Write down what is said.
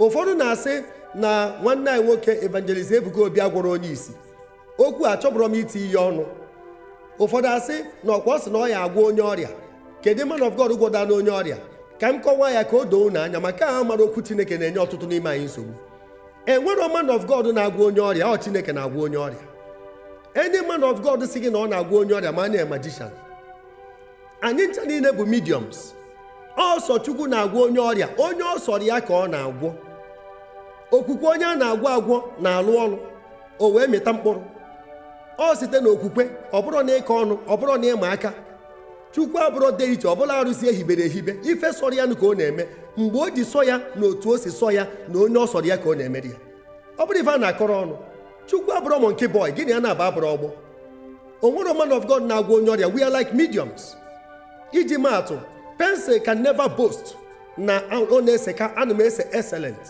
ụfọdụ na-asị na nwanne anyị nwoke evangelist ebuka obi agwọrọ onye isi okwu achọbụrọ m iti ihe ọnụ ụfọdụ asị na ọkwa ọ sị na ọ ya agwọ onye ọrịa kedu man of God gwọda na onye ọrịa ka m kọwaa ya ka o doo na anya maka aha mara okwu chineke na-enye ọtụtụ n'ime anyị nsogbu enwero man of God na-agwọ onye ọrịa ọ chineke na-agwọ onye ọrịa enye man of God si gị na ọ na-agwọ onye ọrịa ma anya magician anyị ncha niile bụ mediums ọsọ chukwu na-agwọ onye ọrịa onye ọsọrọ ya ka ọ na-agwọ okwukwe onye a na-agwọ agwọ na-alụ ọrụ o wee mịta mkpụrụ ọ site n'okwukwe ọ bụrụ na ịka ọnụ ọ bụrụ na ịma aka chukwu abụrụ dị iche ọbụla arụsị ehibere ehibe ife sọrọ ya ka ọ na-eme mgbe o ji sọ ya na otu o si sọ ya na onye ọ sọrọ ya ka ọ na-emeri ya ọ bụrụ ife a na-akọrọ ọnụ chukwu abụrụ nke bọị gịnị ya na-aba abụrụ ọgbọ o nwere man of God na-agwọ onye ọrịa we are like mediums iji maatụ pensil can never bost na ọ na-ese ka ana m ese excellent